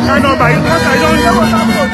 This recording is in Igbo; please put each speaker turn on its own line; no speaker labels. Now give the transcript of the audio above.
看到白，他改装的。